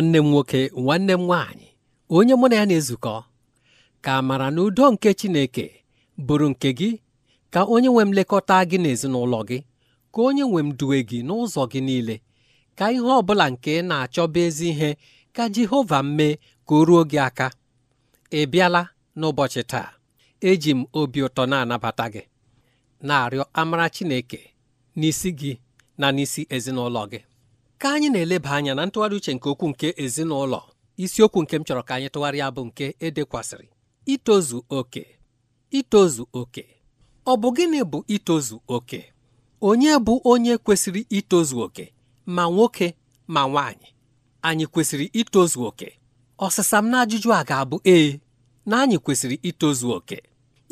nwanne m nwoke nwanne m nwaanyị onye mụ na ya na-ezukọ ka amara na udo nke Chineke bụrụ nke gị ka onye nwe m lekọta gị n'ezinụlọ gị ka onye nwe m duwe gị n'ụzọ gị niile ka ihe ọ bụla nke na-achọba ezi ihe ka Jehova mee ka o ruo gị aka ị bịala n'ụbọchị taa eji m obi ụtọ na-anabata gị na-arịọ amara Chineke n'isi gị na n'isi ezinụlọ gị ka anyị na-eleba anya na ntụgharị uche nke okwu nke ezinụlọ isiokwu nke m chọrọ ka anyị tụgharịa bụ nke edekwasịrị itozu oke itozu oke ọ bụ gịnị bụ itozu oke onye bụ onye kwesịrị itozu oke ma nwoke ma nwaanyị anyị kwesịrị itozu oke ọsịsa m na ajụjụ a ga-abụ ee na anyị kwesịrị itozu oke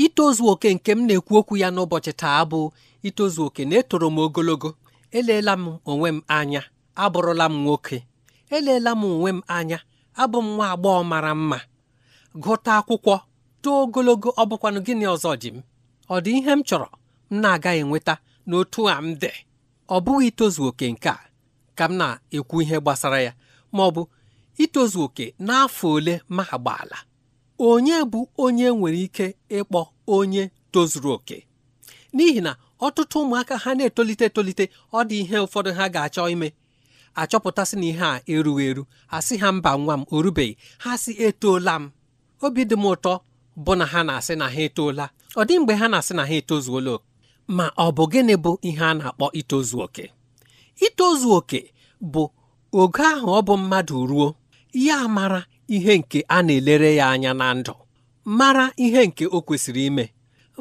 itozu oke nke m na-ekwu okwu ya n'ụbọchị taa bụ itozu oke na-etoro m ogologo eleela m onwe m anya abụrụla m nwoke eleela m onwe m anya abụ m nwa agbọghọ mara mma gụta akwụkwọ too ogologo ọ bụkwanụ gịnị ọzọ ji m ọ dị ihe m chọrọ m na-agaghị enweta n'otu a m dị ọ bụghị itozu oke nke a ka m na-ekwu ihe gbasara ya ma ọ bụ itozu oke n'afọ ole ma agbaala onye bụ onye nwere ike ịkpọ onye tozuru oke n'ihi na ọtụtụ ụmụaka ha na-etolite etolite ọ dị ihe ụfọdụ ha ga-achọ ime achọpụtasị na ihe a erughị eru ha sị ha mba nwa m orubeghị ha sị etoola m obi dị m ụtọ bụ na ha na-asị na ha etoola ọ dị mgbe ha na-asị na ha etozuola oke ma ọ bụ gịnị bụ ihe a na-akpọ itozu oke itozu oke bụ oge ahụ ọ bụ mmadụ ruo ya mara ihe nke a na-elere ya anya na ndụ mara ihe nke o kwesịrị ime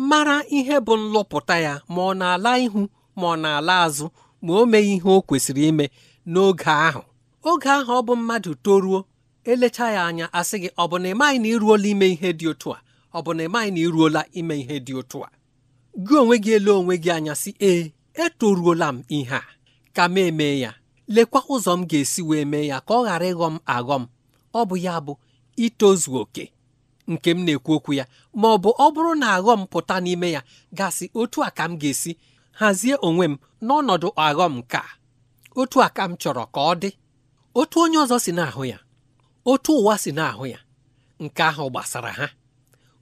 mara ihe bụ nlụpụta ya ma ọ na-ala ihu ma ọ na-ala azụ ma o meghị ihe o kwesịrị ime n'oge ahụ oge ahụ ọ bụ mmadụ toruo elecha ya anya asị gị ọ bụ na ịmaghị na iruola ime ihe dị otu a ọ bụ na ịmaghị na iruola ime ihe dị otu a gị onwe gị ele onwe gị anya sị ee etoruola m ihe a ka m eme ya lekwa ụzọ m ga-esi wee mee ya ka ọ ghara ịghọ m aghọ m ọ bụ ya bụ itozu oke nke m na-ekwu okwu ya ma ọ bụ ọ bụrụ na aghọ m pụta n'ime ya gasị otu a ka m ga-esi hazie onwe m n'ọnọdụ aghọ m ka otu a m chọrọ ka ọ dị otu onye ọzọ si n'ahụ ya otu ụwa si n'ahụ ya nke ahụ gbasara ha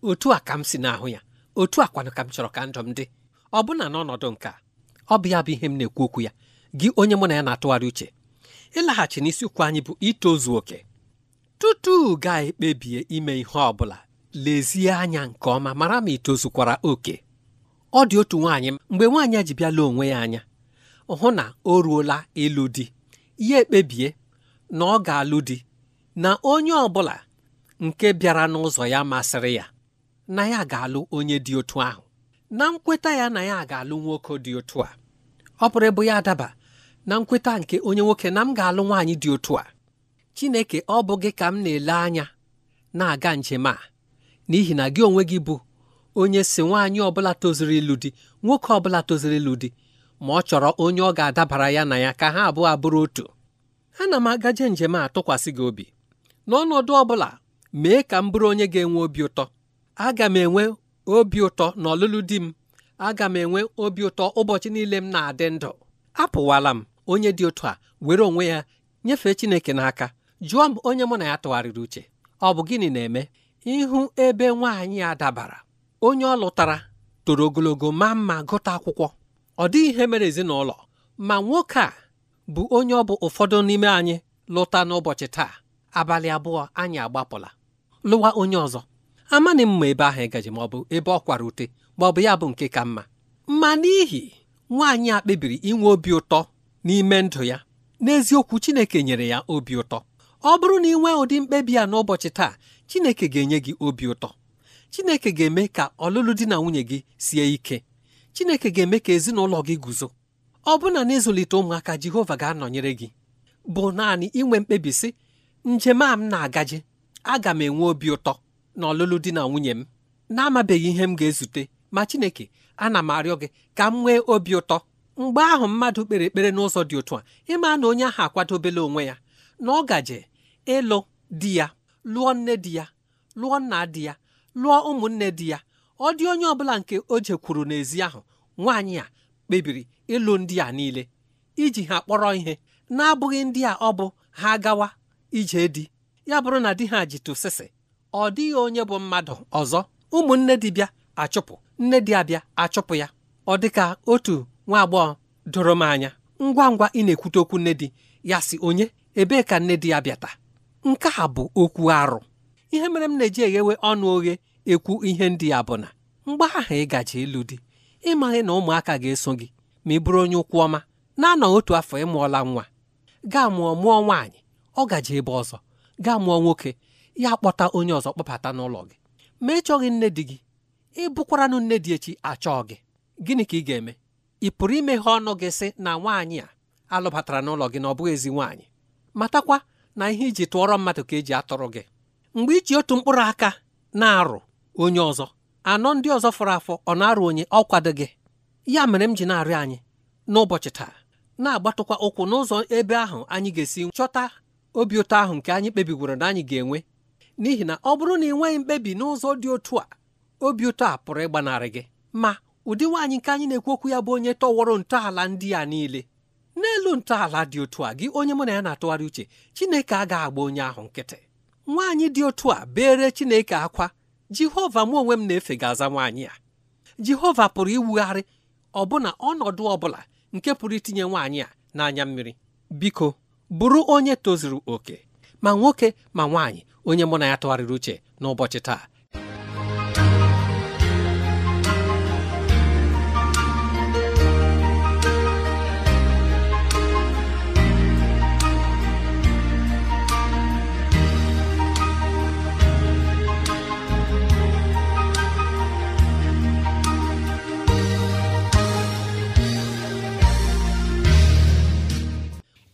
otu a ka m si n'ahụ ya otu a kwanụ ka m chọrọ ka ndụ m dị ọbụna n'ọnọdụ nke a ọ bụ ya bụ ihe m na-ekwu okwu ya gị onye mụ na ya na-atụgharị uche ịlaghachi n'isiokwu anyị bụ itozu oke tutu ga-ekpebie ime ihe ọ bụla lezie anya nke ọma mara ma itozukwara oke ọ dị otu nwaanyị mgbe nwaanyị a ji bịala onwe ya anya hụ na o ruola ịlụ di ya ekpebie na ọ ga-alụ di na onye ọ bụla nke bịara n'ụzọ ya masịrị ya na ya ga-alụ onye dị otu ahụ na nkweta ya na ya ga-alụ nwoke dị otu a ọ bụrụ ịbụ ya adaba na nkweta nke onye nwoke na m ga-alụ nwaanyị dị otu a Chineke ọ bụ gị ka m na-ele anya na-aga njem a n'ihi na gị onwe gị bụ onye si nwaanyị ọbụla tozuru ịlụ di nwoke ọbụla tozuru ịlụ di ma ọ chọrọ onye ọ ga-adabara ya na ya ka ha abụọ abụrụ otu ana m agaje njem a tụkwasị gị obi n'ọnọdụ ọ bụla mee ka m bụrụ onye ga-enwe obi ụtọ aga m enwe obi ụtọ n'ọlụlụ di m aga m enwe obi ụtọ ụbọchị niile m na-adị ndụ apụwala m onye dị otu a were onwe ya nyefee Chineke n'aka jụọ m onye mụ na ya tụgharịrị uche ọ bụ gịnị na-eme ịhụ ebe nwaanyị a dabara onye ọ lụtara toro ogologo ma mma gụta akwụkwọ ọ dịghị ihe mere ezinụlọ ma nwoke a bụ onye ọ bụ ụfọdụ n'ime anyị lụta n'ụbọchị taa abalị abụọ anyị agbapụla lụwa onye ọzọ amaghị mma ebe ahụ ịgaji ma ọ bụ ebe ọ kwara ute ma ọ bụ ya bụ nke ka mma ma n'ihi nwaanyị a kpebiri inwe obi ụtọ n'ime ndụ ya n'eziokwu Chineke nyere ya obi ụtọ ọ bụrụ na ị nwee ụdị mkpebi a n'ụbọchị taa Chineke ga-enye gị obi ụtọ Chineke ga-eme ka ọlụlụ di na nwunye gị sie ike chineke ga-eme ka ezinụlọ gị guzo ọ bụna na ịzụlite ụmụaka jehova ga-anọnyere gị bụ naanị inwe mkpebi sị njem a m na-agaje aga m enwe obi ụtọ na ọlụlụ di na nwunye m na-amabeghị ihe m ga-ezute ma chineke ana m arịọ gị ka m nwee obi ụtọ mgbe ahụ mmadụ kpere ekpere n'ụzọ dị otu a ịma na onye ahụ akwadobela onwe ya na ọ gaje ịlụ di ya lụọ nne di ya lụọ nna di ya lụọ ụmụnne di ya ọ dị onye ọbụla nke o jekwuru n'ezi ahụ nwaanyị a kpebiri ịlụ ndị a niile iji ha kpọrọ ihe na-abụghị ndị a ọ bụ ha gawa ije di ya bụrụ na di ha jitụsịsị ọ dịghị onye bụ mmadụ ọzọ ụmụnne bịa achụpụ nne di abịa achụpụ ya ọ dịka otu nwa agbọghọ doro m anya ngwa ngwa ị na-ekwute okwu nne di ya si onye ebee ka nne di ya bịata nke a bụ okwu arụ ihe mere m na-eji eghewe ọnụ oghe ekwu ihe ndị a bụ na mgbe ahụ ị gaje ịlụ di ịmaghị na ụmụaka ga-eso gị ma ị bụrụ onye ụkwụ ọma na-anọ otu afọ ịmụọla nwa gaa mụọ mụọ nwaanyị ọ gaje ebe ọzọ gaa mụọ nwoke ya kpọta onye ọzọ kpọbata n'ụlọ gị ma ị chọghị nne di gị ị bụkwaranụ nne dị echi achọọ gị gịnị ka ị ga-eme ị pụrụ imeghe ọnụ gị sị na nwaanyị a alụbatara n'ụlọ gị na ọ bụghị ezi nwaanyị matakwa na ihe iji tụọrọ mmadụ ka eji atụrụ gị mgbe iji otu mkpụrụ aka na-arụ onye ọzọ anọ ndị ọzọ fọrọ afọ ọ na-arụ onye ọ kwadoghị ya mere m ji na-arịọ anyị n'ụbọchị taa na-agbatụkwa ụkwụ n'ụzọ ebe ahụ anyị ga-esi chọta obi ụtọ ahụ nke anyị kpebigworo na anyị ga-enwe n'ihi na ọ bụrụ na ị nweghị mkpebi n'ụzọ dị otu a obi ụtọ a pụrụ ịgbanarị gị ma ụdị nwaanyị nke anyị na-ekwu okwu ya bụ onye tọwọrọ ntọala ndị a niile n'elu ntọala dị otu a gị onye mụ na ya na-atụgharị uche Chineke agaghị agba onye ahụ nkịtị nwaanyị dị otu a bere Chineke akwa jehova mụ onwe m na-efe ga-aza nwaanyị a jehova pụrụ iwugharị ọbụna ọnọdụ ọbụla nke pụrụ itinye nwaanyị a n'anya mmiri biko bụrụ onye tozuru oke ma nwoke ma nwaanyị onye mụ na ya tụgharịrị uche n'ụbọchị taa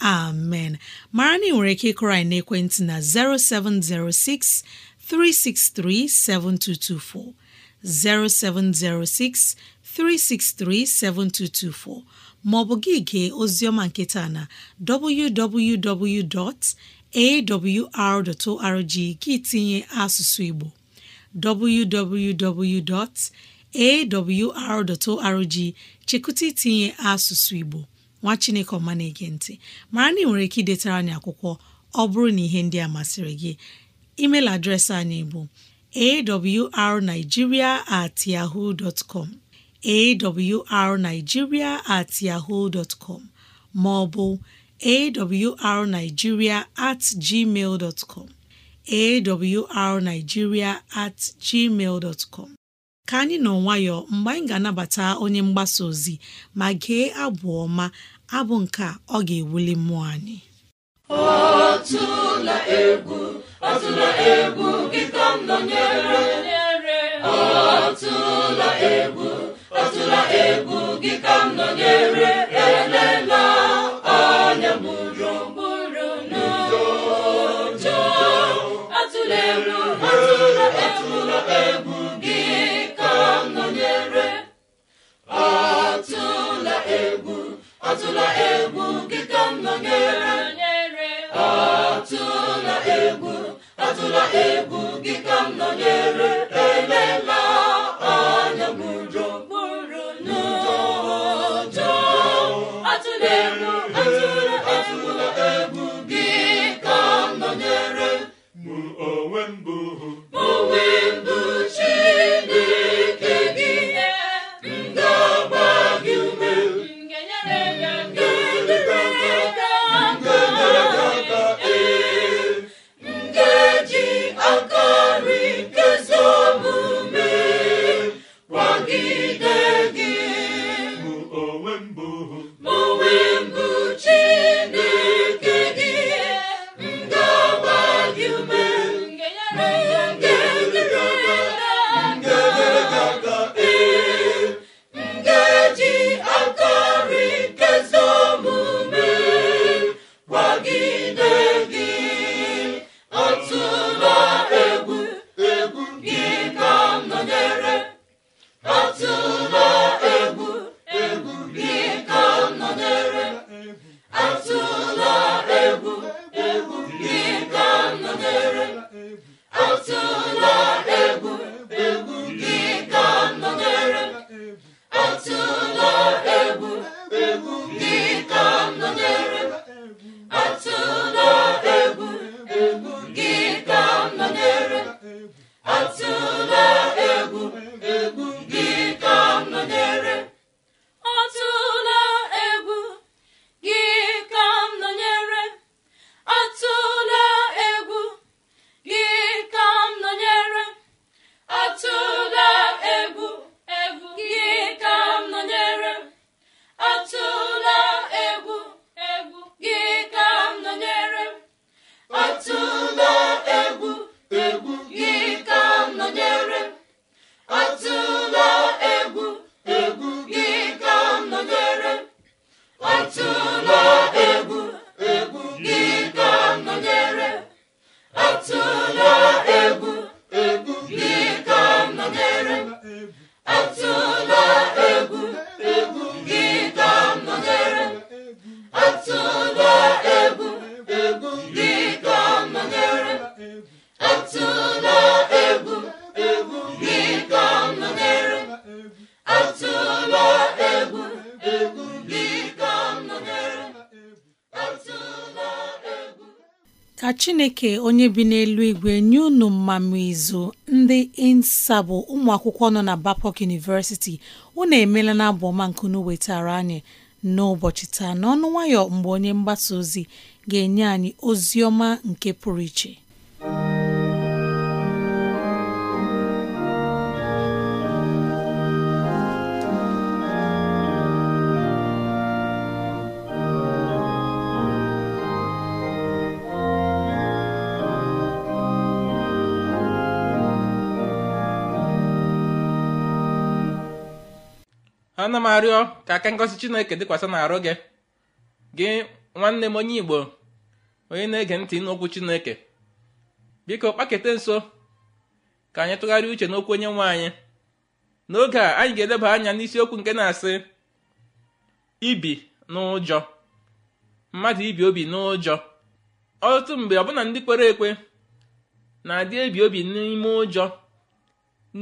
amen mara na nwere ike ịkụrọ anyị n'ekwentị na 0706 363 7224 0706 363 7224 Ma ọ maọbụ gị gee oziọma nketa na www.awr.org gị tinye asụsụ Igbo www.awr.org chekụta tinye asụsụ Igbo nwa chineke ọma na-ege ntị mara na ị nwere ike idetara anyị akwụkwọ ọ bụrụ na ihe ndị a masịrị gị email adreesị anyị bụ arigiria at yahoo com at yahoo com ma ọ bụ at gmail com awrnigeria at gmail com ka anyị nọ nwayọ mgbe anyị ga-anabata onye mgbasa ozi ma gee abụ ọma abụ nke ọ ga-ewuli mmụọ anyị atụla egwu atụla egwu gị ka m nọnyere atụla egwu atụla egwu gị ka m nọnyere egwu gị ka m nọnyere Move. ka chineke onye bi n'elu igwe nye unu mmamụ izu ndị insa bụ ụmụakwụkwọ nọ na bapok University unu emela na abụ ọma nke unu wetara anyị n'ụbọchị taa n'ọnụ nwayọ mgbe onye mgbasa ozi ga-enye anyị ozi ọma nke pụrụ iche ana m arịọ ka aka ngosi chineke dịkwasị n'arụ gị gị nwanne m onye igbo onye na-ege ntị n'okwu chineke biko kpakete nso ka anyị tụgharịa uche n'okwu onye nwe anyị n'oge a anyị ga-edeba anya n'isiokwu nke na-asị ibi n'ụjọ mmadụ ibi obi n'ụjọ ọtụtụ mgbe ọbụna ndị kwere ekwe na-adị ebi obi n'ime ụjọ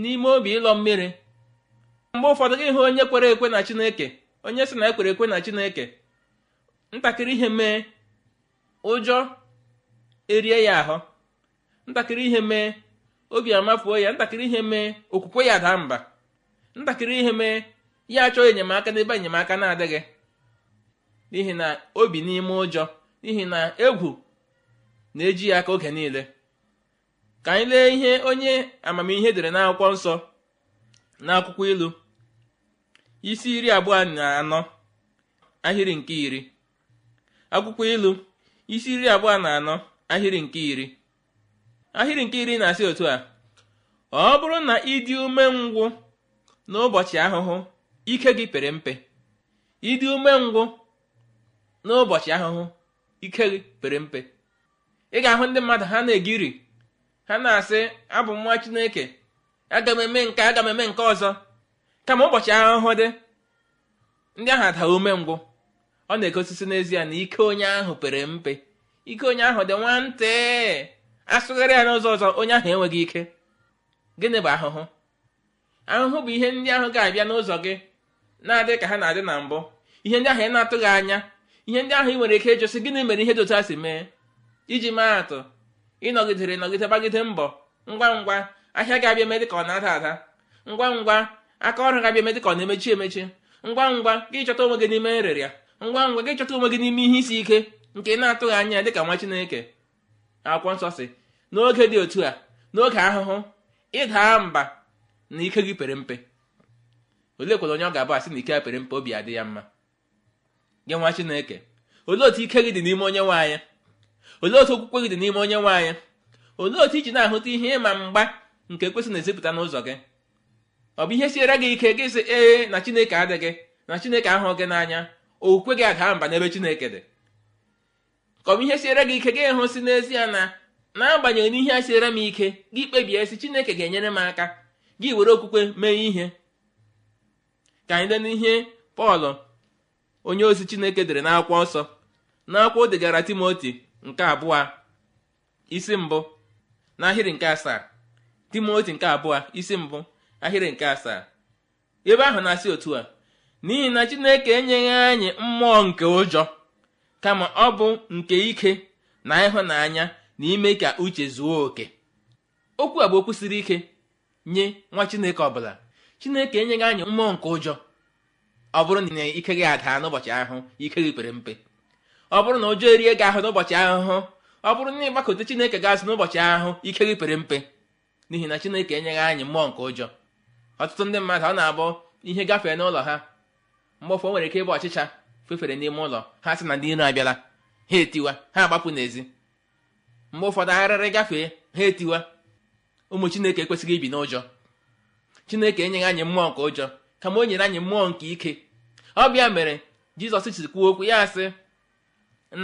n'ime obi ịlọ mmiri mgbe ụfọdụ gị hụ onye kwere ekwe na chineke onye sị na ekwere ekwe na chineke ntakịrị ihe mee ụjọ erie ya ahụ ntakịrị ihe mee obi amafuo ya ntakịrị ihe mee okwukwe ya daa mba ntakịrị ihe mee ya achọ enyemaka n'ebe enyemaka na-adịghị n'ihi na obi n'ime ụjọ n'ihi na egwu na-eji ya aka oge niile ka anyị lee ihe onye amamihe dere n'akwụkwọ nsọ n'akwụkwọ ilu isi iri abụọ na anọ ahịrị nke iri ahịrị nke iri na-asị otu a ọ bụrụ na ịdị ume n'ụbọchị ahụhụ ike n'ụbọchị ahụhụ ike gị pere mpe ị ga-ahụ ndị mmadụ ha na-egiri ha na-asị abụ nwa Chineke aga m eme nke aga m eme nke ọzọ kama ụbọchị ahụhụ dị ndị ahụ adaghị umengwụ ọ na-egosisi n'ezie na ike onye ahụ pere mpe ike onye ahụ dị nwantị asụgharị ya n'ụzọ ọzọ onye ahụ enweghị ike gịnị bụ ahụhụ ahụhụ bụ ihe ndị ahụ ga-abịa n'ụzọ gị na-adị ka ha na-adị na mbụ ihe ndị ahụ ị na-atụghị anya ihe ndị ahụ ị nwere ike ịjụsị gịnị mere ihe dị otu a si mee iji maa atụ ịnọgidere ịnọgide gbagide mbọ ngwa ngwa ahịa ga-abịa eme dịka ọ na-ada ada ngwa ngwa aka ọrụ ga-abịa eme dịka ọ na-emechi emechi ngwa ngwa gị chọta onwe gị n'ime nrịrịa ngwa ngwa gị chọta onwe gị n'ime ihe isi ike nke na-atụghị anya dịka nwa chineke akwụkwọ nsọ si n'oge dị otu a n'oge ahụhụ ịdaa mba na ike gị pere mpe olee kwere onye ọ ga-abụ asị na ike ya pere mpe obi adị ya mma gị nwa chineke olee otu ike gị dị n'ime onye nwe anya olee otu okwukwe gị dị n'ime onye nwe anya olee otu iji na-ahụta ihe ịma mgba nke kwesịrị na-ezipụta n'ụzọ gị ọ bụ ihe siere gị ike gị sị ee na chineke adịghị na chineke ahụ gị n'anya okwukwe gị adaa mba n'ebe chineke dị ka ọ bụ ihe siere gị ike gị hụ si n'ezie na n'agbanyeghị n'ihe a siere m ike gị kpebie si chineke ga-enyere m aka gị were okwukwe mee ihe ka anyị lee n'ihe pọl onye ozi chineke dere n'akwụkwọ nsọ n'akwụkwọ o degara timoti nke abụọ isi mbụ n'ahịrị nke asaa timoti nke abụọ isi mbụ ahịrị nke asaa ebe ahụ na-asị otu a n'ihi na chineke enyeghị anyị mmụọ nke ụjọ kama ọ bụ nke ike na ịhụnanya na ime ka uche zuo oke okwu a bụ okwu siri ike nye nwa chineke ọbụla chineke enyeghị anyị mmụọ nke ụjọ ọ bụrụ na ike gị ada n'ụbọchị ahụ ike gị pere mpe ọ bụrụ na ụjọ erie gị ahụ n'ụbọchị ahụhụ ọ bụrụ na ịgbakọta chineke gị azụ n'ụbọchị ahụhụ ike gị pere mpe n'ihi na chineke enyeghị anyị mmụọ nke ụjọ ọtụtụ ndị mmadụ ọ na-abụ ihe gafee n'ụlọ ha mgbọfọ nwere ike ịbụ ọchịcha fefere n'ime ụlọ ha sị na ndị iro abịala ha etiwa ha agbapụ n'ezi mgbe ụfọdụ arịrị gafee ha etiwa ụmụ chineke ekwesịghị ibi n'ụjọ chineke enyeghị anyị mmụọ nke ụjọ kama o nyere anyị mmụọ nke ike ọ bịa mere jizọs si kwuo okwu ya sị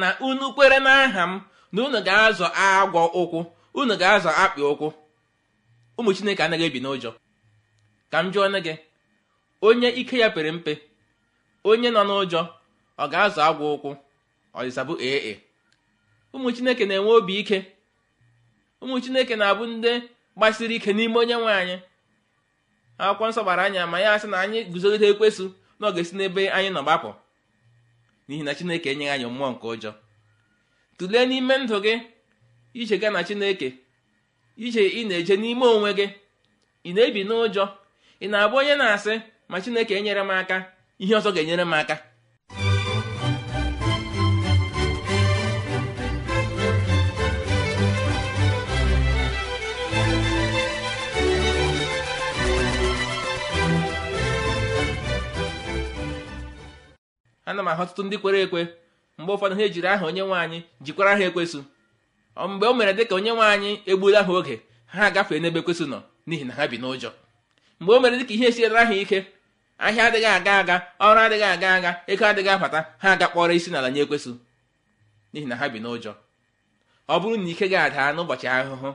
na unu kwere n'aha m na unu ga-azọ agwọ ụkwụ unu ga-azọ akpị ụkwụ ụmụ chineke anaghị ebi n'ụjọ ka m jụọ nne gị onye ike ya pere mpe onye nọ n'ụjọ ọ ga-azụ agwọ ụkwụ ọdịsabụ ee ụmụ chineke na-enwe obi ike ụmụ chineke na-abụ ndị gbasiri ike n'ime onye nwe anyị akwụkwọ nsọ gbara anya ma ya asị na anyị guzogide ekwesụ na ọ esi n'ebe anyị nọ gbapụ n'ihi na chineke enyeghị anyị mmụọ nke ụjọ tụlee n'ime ndụ gị ije gaa na chineke ije ị na-eje n'ime onwe gị ị na-ebi n'ụjọ ị na-abụ onye na-asị ma chineke enyere m aka ihe ọzọ ga-enyere m aka ana m ahụ ọtụtụ ndị kwere ekwe mgbe ụfọdụ ha ejiri aha onye nwe anyị jikwara ha ekwesu mgbe o mere dịka onye nwe anyị egbula ha oge ha agafee n'ebe kwesị nọ n'ihi na ha bi n'ụjọ mgbe o mere dịka ihe esiela ha ike ahịa adịghị aga aga ọrụ adịghị aga aga ego adịghị abata ha aga kpọrọ isi n'ala nye ekwesụ n'ihi na ha bi n'ụjọ ọ bụrụ na ike ga adaa n'ụbọchị ahụhụ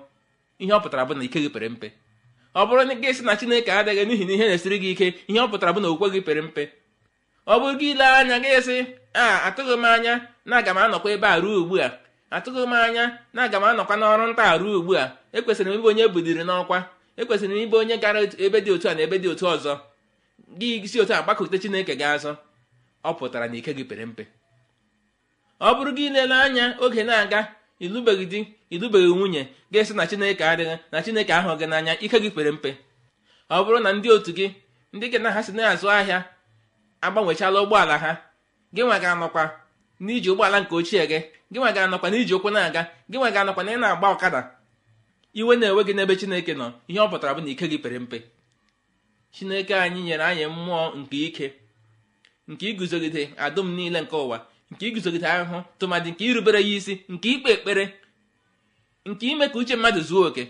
ihe ọ pụtara bụ na ike gị pere mpe ọ bụrụ na gị sị na chineke adịghị n'ihi na ihe na-esiri gị ike ihe ọ pụtara bụ na okwukwe gị pere mpe ọ bụrụ gị ile anya gị sị a atụghị m anya na aga m anọkwa ebe a ruo ugbu a atụghị m anya na aga m anọkwa n'ọrụ nta ruo ugbu a ekwesịrị m ịbụ onye buliri n'ọkwa ekwesịrị m ịbụ onye gara ebe dị otu a na ebe dị otu ọzọ gị si otu a gbakọte chineke gị azọ ọ pụtara na ike gị pere mpe ọ bụrụ gị ilele anya oge na-aga ịlụbeghị di ịlụbeghị nwunye ga-esi na chineke adịghị na chineke ahụ gị n'anya ike gị pere mpe ọ bụrụ na ndị otu gị ndị gị na ha si na-azụ ahịa agbanwechala ụgbọala ha gị nwe ga-anọkwa n'iji ụgbọala nke ochie gị gị nwa ga-anọkwa n'iji ụkwụ na-aga gị nwa ga-anọkwa na ị na-agba ọkada iwe na-enwe gị n'ebe chineke nọ ihe ọ pụtara bụ na ike gị pere mpe chineke anyị nyere anyị mmụọ nke ike nke iguzogide adụm niile nke ụwa nke iguzogide ahụhụ tụmadị nke irubere ya isi nke ikpe ekpere nke ime ka uche mmadụ zuo oke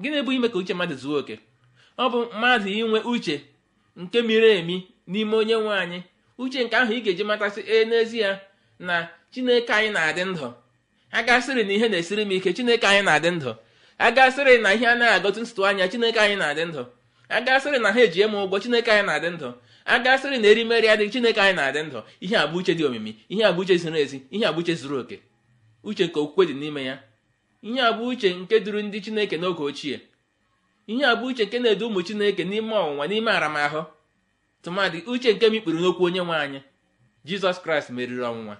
gịnị bụ ime ka uche mmadụ zuo oke ọ bụ mmadụ inwe uche nke miri emi n'ime onye nwe anyị uche nke ahụ ị ga-eji matasị ee n'ezie na chineke anyị na-adị ndụ agasịrị na ihe na-esiri m ike chineke anyị na-adị ndụ agasịrị na ihe anaghị agọtụ ntụtụ anya chineke anyị na-adị ndụ agasịrị na ha ejie m ụgwọ chineke anyị na-adị ndụ agasịrị na erimeri adịghị chineke anyị na-adị ndụ ihe abụ uche dị omimi ihe abụ uche ziri ezi ihe abụ uche zuru oke uche nke okwukwe dị n'ime ya ihe abụ uche nke duru ndị chineke n'oge ochie ihe abụ uche nke na-edu ụmụ chineke n'ime ọnwụnwa n'ime aramahụ tụmadị uche nke mikpuru n'okwu onye nwe anyị jizọs kraịst meriri ọnwụnwa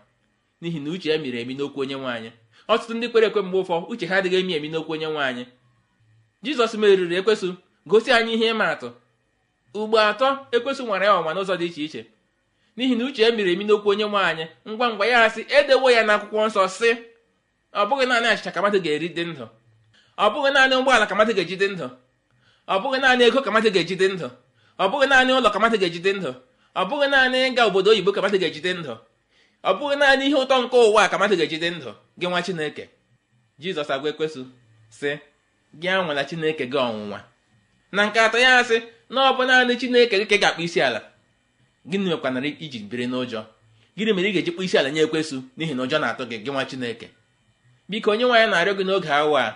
n'ihi na uche ya miri emi n'okwu onye nwaanyị ọtụtụ ndị kwere ekwe mgbe ụfọ uche ha adịghị emi emi n'okwu onye nwaanyị jizọs meriri ekwesụ gosi anyị ihe ịma atụ ugbo atọ ekwesụ nwara ya ọnwa n'ụzọ dị iche iche n'ihi na uche ya miri emi n'okwu onye nwaanyị ngwa ngwa ya asị edewo ya na akwụkwọ nsọ sị ọ bụghị naanị achịcha ka mmadụ ga-eri dị ndụ ọ bụghị naanị ụgbọala ka mmadụ ga-eji dị ndụ ọ bụghị naanị ego ka mmadụ ga-eji dị ndụ ọ bụghị naanị ụlọ ka mmadụ ga-eji dị ndụ ọ bụghị naanị ịga obodo oyibo ka mmadụ ga-eji dị ndụ ọ bụghị naanị ihe ụtọ nke ụwa ka mmadụ ga-ejide ndụ gị nwa chineke jizọs agwa ekwesụ sị gị anwala chineke gị ọnwụnwa na nke atọ ya sị na ọ bụ naanị chineke gị ka ga-akpụ isi ala gịnị mekwanara iji biri n'ụjọ gịnị mere ị ga-eji kpụ isi ala nye ekwesụ n'ihi na ụjọ na-atụ gị gị nwa chineke biko onye nwaanyị na-arịọ gị n'oge awa a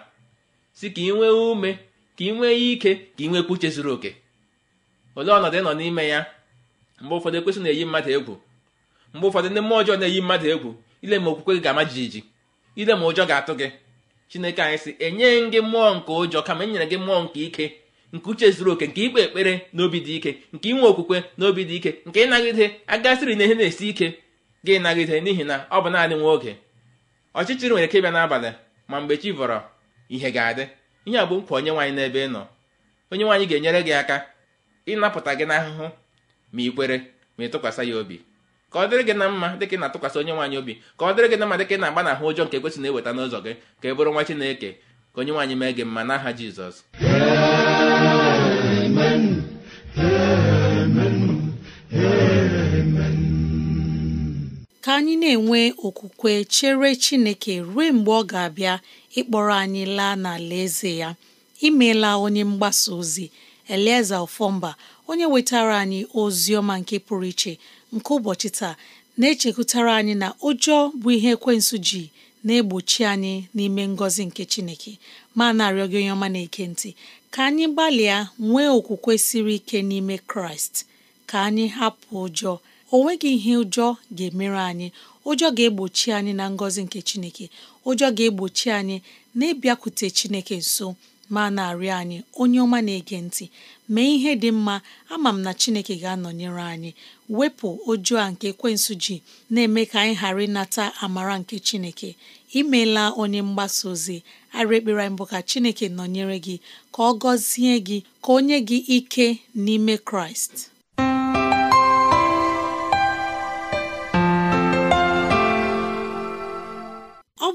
si ka ị nwee ume ka ị nwee ike ka ị nwekwa uche zuru oke olee ọnọdụ ị nọ n'ime ya mgbe ụfọdụ ekwesị na-eyi mmadụ egwu mgbe ụfọdụ ndị mmụọ ọjọọ na-eyi mmadụ egwu ile ma okwukwe gị ga-ama jijiji ile ma ụjọ ga-atụ gị chineke anyị sị enyeghị gị mmụọ nke ụjọ kama enyere gị mmụọ nke ike nke uche zuru oke nke ikpe ekpere n'obi dị ike nke inwe okwukwe n'obi dị ike nke ịnagide agasịrị na ihe na-esi ike gị ịnagide n'ihi na ọ bụ naanị nwa oge ọchịchịrị nwere ike ịbịa n'abalị ma mgbe chi vọrọ ihe ga-adị ihe a bụ nkwa onye nwaanyị n'ebe ị nọ onye nwaanyị ga-enyere gị aka ịnapụta gị n'ahụhụ ma ị kwere ma ị tụkwasị ya obi ka ọ dịrị gị na mma dịka ị na-atụkwasị onye nwaanyị obi ka ọ dịrị gị na mma dịka ị na-agba ụjọ nke ekwesị na-eweta n'ụzọ gị ka ị bụrụ nwa Chineke ka onye nwaanyị mee gị mma n'aha Jizọs ka anyị na-enwe okwukwe chere Chineke ruo mgbe ọ ga-abịa ịkpọrọ anyị laa n'ala eze ya imeela onye mgbasa ozi Elieza Ofọmba onye wetara anyị ozi ọma nke pụrụ iche nke ụbọchị taa na-echekwutara anyị na ụjọ bụ ihe ekwensụ ji na-egbochi anyị n'ime ngọzi nke Chineke ma na-arịọ gị onye ọma na-eke ntị ka anyị gbalịa nwee okwukwe siri ike n'ime Kraịst ka anyị hapụ ụjọ o nweghị ihe ụjọ ga-emere anyị ụjọ ga-egbochi anyị na ngọzi nke Chineke ụjọ ga-egbochi anyị na ịbịakwute Chineke nso ma na-arịọ anyị onye ọma na-ege ntị mee ihe dị mma ama m na Chineke ga-anọnyere anyị wepụ oju a nke kwensụ ji na-eme ka anyị ghara ịnata amara nke Chineke Imela onye mgbasa ozi arị ekpere mbụ ka Chineke nọnyere gị ka ọ gọzie gị ka o nye gị ike n'ime Kraịst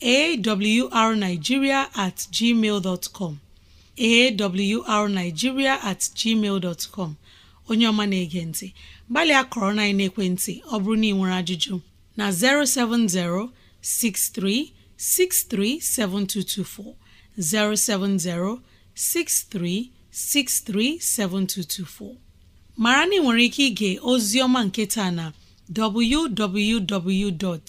arigiria atgmal com arigiria atgmal com onye ọma na-ege ntị gbalịa kọrọ na ekwentị ọ bụrụ na ị nwere ajụjụ na 070 7224. 070-6363-7224 mara na nwere ike ige ozi ọma nke taa na www.